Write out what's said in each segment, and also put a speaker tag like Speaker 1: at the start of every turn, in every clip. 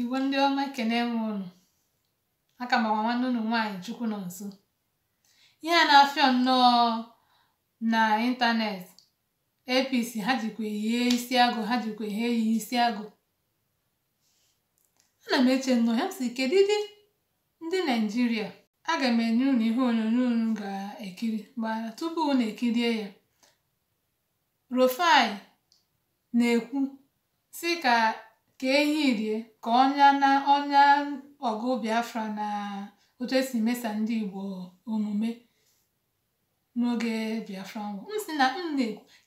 Speaker 1: igwe ndị ọma ekene m unu aka m agwa nwanne nwanyị nwaanyị chukwu nọ nso ihe a na-afịọ nnọọ na ịntanetị apc ha jikwa isi agụ ha jikwa ihe isi agụ ana m eche nnọọ ya m ndị naijiria aga m enye unu ihe onyonyo unu ga-ekiri gbara tupu unu ekirie ya Rufai na-ekwu sị ka ka ehi rie ka ọnya na ọnya ọgụ Biafra na otu esi mesa ndị Igbo omume n'oge Biafra nwụrụ m na m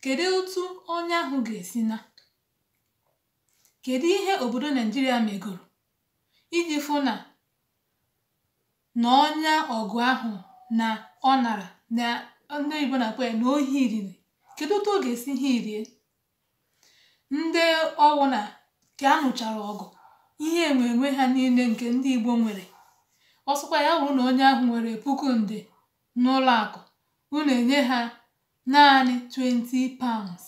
Speaker 1: kedu otu ọnya ahụ ga-esi na kedu ihe obodo Naijiria megoro iji fụ na na ọnya ọgụ ahụ na ọ nara na ndị Igbo na-akpọ ya na ohi riri kedu otu ọ ga-esi hie rie ndị ọwụ na ka a nụchara ọgụ ihe enwenwe ha niile nke ndị Igbo nwere ọ ya bụrụ na onye ahụ nwere puku nde n'ụlọakụ unu enye ha naanị 20 pounds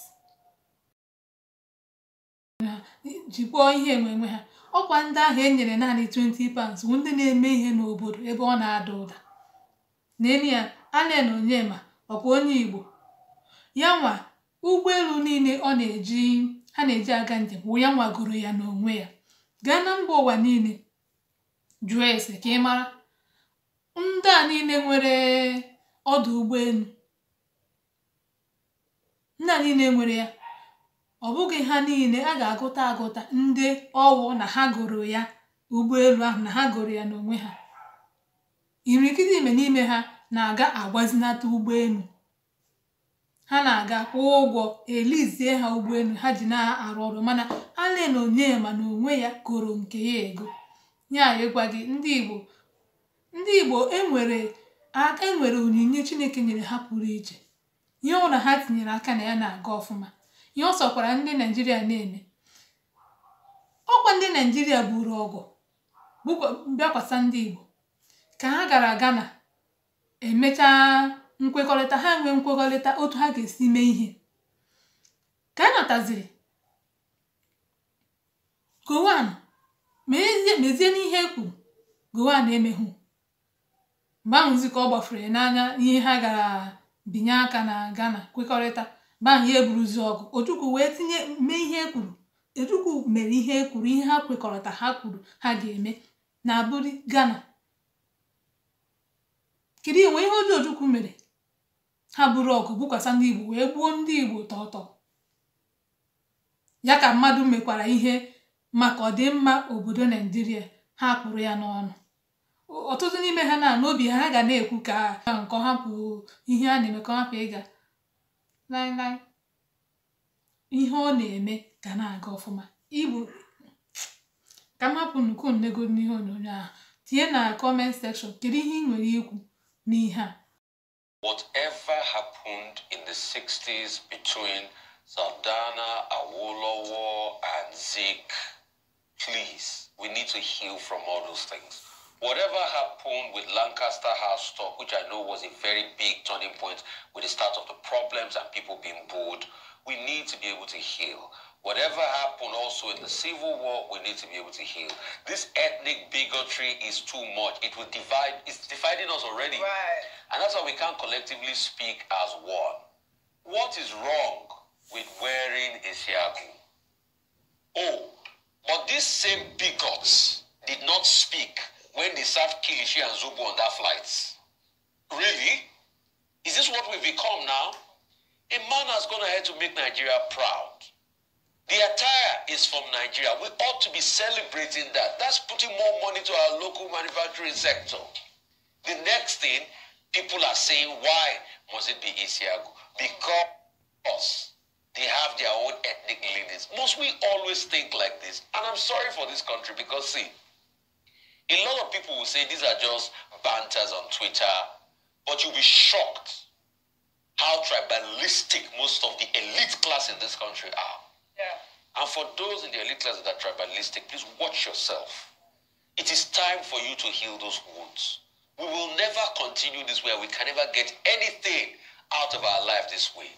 Speaker 1: jikpọọ ihe enwenwe ha ọkwa ndị ahụ enyere naanị 20 pounds bụ ndị na-eme ihe n'obodo ebe ọ na-ada ụda n'elu ya Allen Onyema ọkwa onye Igbo ya nwa ụgbọelu niile ọ na-eji ha na-eji aga njem wụ ya nwagoro ya n'onwe ya gaa na mba ụwa niile jụọ ese ka ị mara ndị a niile nwere ọdụ ụgbọelu ndị a niile nwere ya ọ bụghị ha niile a ga-agụta agụta ndị ọwụ na ha goro ya ụgbọelu ahụ na ha goro ya n'onwe ha imirikiti ime n'ime ha na-aga agbazinata ụgbọelu ha na-aga kwụọ ụgwọ elizie ha ụgbọelu ha ji na-arụ ọrụ mana onye ma na onwe ya goro nke ya ego ya gị ndị Igbo ndị Igbo enwere enwere onyinye Chineke nyere ha pụrụ iche ihe ọ ha tinyere aka na ya na-aga ọfụma ihe ọ sọkwara ndị Naijiria na-eme ọkwa ndị Naijiria buru ọgụ bịakwasa ndị Igbo ka ha gara na emechaa nkwekọrịta ha nwee nkwekọrịta otu ha ga-esi mee ihe ka a nataziri Gowon mezie n'ihe e kwuru Gowon emeghụ mgbe ahụ ka ọ gbafere n'anya ihe ha gara binye aka na Ghana kwekọrịta mgbe ya eburuzi ọgụ Ojukwu wee tinye mee ihe e kwuru Ojukwu mere ihe e kwuru ihe ha kwekọrịta ha kwuru ha ga-eme na buri Ghana kedu enwe ihe ọjọọ Ojukwu mere ha buru ọgụ bukwasa ndị Igbo wee gbuo ndị Igbo tọtọ ya ka mmadụ mekwara ihe maka ọdịmma obodo Naijiria ha kpụrụ ya n'ọnụ ọtụtụ n'ime ha na n'obi ha ga na-ekwu ka nke ha ihe a na-eme ka hapụ ịga ihe ọ na-eme ga na-aga ọfụma Igbo ka m hapụ nnukwu nnego n'ihe onyonyo ahụ tinye na kọment sekshọn kedu ihe ị nwere ikwu n'ihe a Whatever happened in the 60s between Saldana, Awolowo, and Zeke, please,
Speaker 2: we need to heal from all those things. Whatever happened with Lancaster House stock, which I know was a very big turning point with the start of the problems and people being bored, we need to be able to heal. Whatever happened also in the civil war, we need to be able to heal. This ethnic bigotry is too much. It will divide, it's dividing us already. Right. And that's why we can't collectively speak as one. What is wrong with wearing a shiaku? Oh, but these same bigots did not speak when they served Kilishi and Zubu on that flight. Really? Is this what we've become now? A man has gone ahead to make Nigeria proud. The attire is from Nigeria. We ought to be celebrating that. That's putting more money to our local manufacturing sector. The next thing, people are saying, why must it be Isiago? Because they have their own ethnic leanings. Must we always think like this? And I'm sorry for this country because, see, a lot of people will say these are just banters on Twitter, but you'll be shocked how tribalistic most of the elite class in this country are. And for those in the elite class that are tribalistic, please watch yourself. It is time for you to heal those wounds. We will never continue this way. We can never get anything out of our life this way.